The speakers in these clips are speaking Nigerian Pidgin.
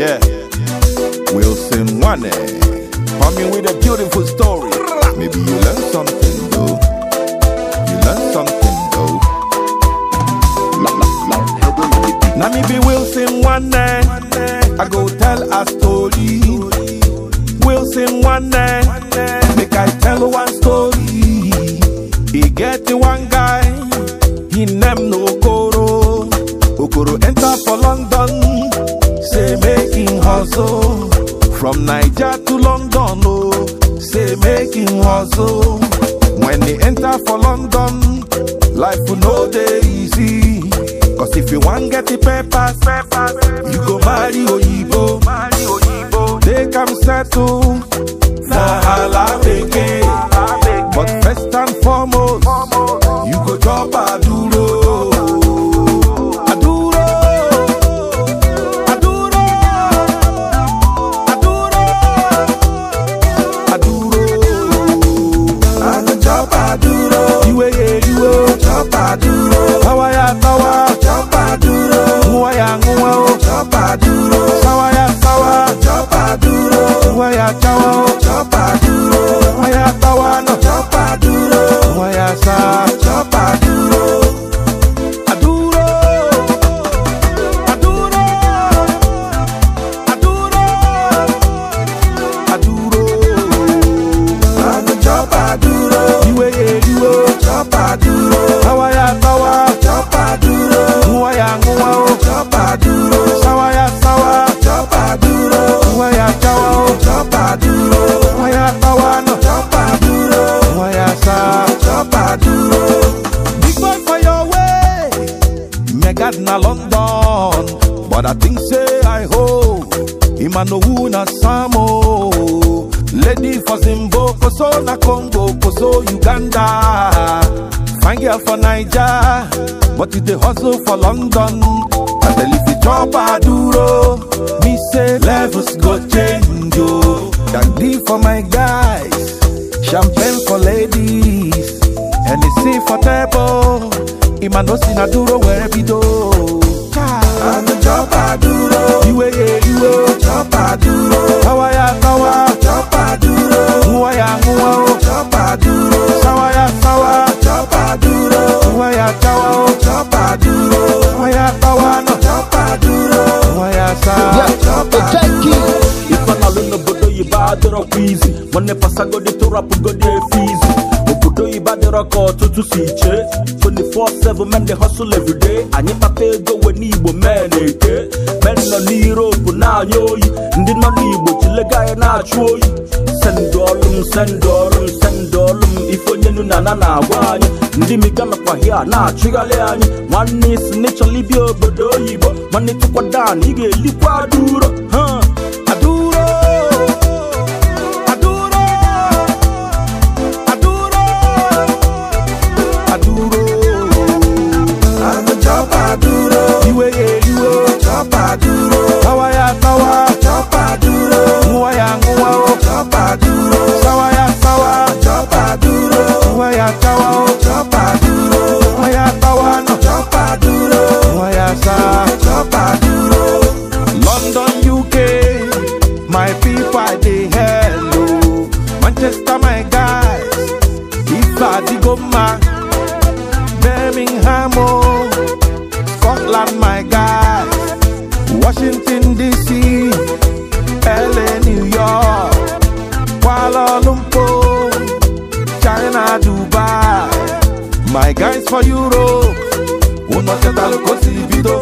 Yeah. Wilson Wane. Coming with a beautiful story. Maybe you learn something though. You learn something though. Now me be Wilson Wane. I go tell a story. Wilson Wane. Make I tell one story. He get one guy. on, oh, say making him oh. hustle. When they enter for London, life will no day easy. Cause if you want get the papers, papers you go marry Oyibo. They come settle, Zahala But I think say I hope. him a no who samo. Oh. Lady for Zimbo, Koso na Congo, Koso Uganda. Fine girl for Niger, but it the hustle for London. And then if the chop a duro, me say levels go change yo. Oh. Dandy for my guys, champagne for ladies, and it's for table. Imanosi na duro where it do. izi nwanne pasagodi tụrapụgodi efe izu obodo iba dịrọ ka ọtụtụ si chee 24/7 men dey hustle everyday anyị kpata ego we n'igbo men eke men nọ n'Europe na-anya oyi ndị nọ n'igbo chilega anyị na-achụ oyi sendụ ọrụ m sendụ ọrụ ife onye na ana na-agwa anyị ndị miga nakwa na-achụgharị anyị nwanne isi n'ịchọla ibi obodo oyibo nwanne tụkwadan ị ga-elikwa dị sawa ya sawa nguwa ya nguwa duro. sawa ya sawa nguwa ya sawa o nguwa ya sawa no duro. nguwa ya sawa London UK my people I dey hello oh. Manchester my guys if I dey go ma Birmingham oh, Scotland my guys. my guys for Europe. Una settle Kosibito.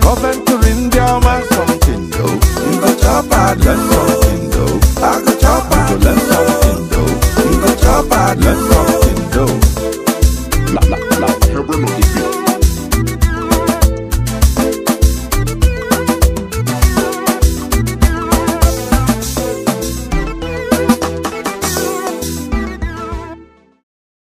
Come to India, man, something though. You go chop and learn something though. I go chop and learn something though. You go chop and learn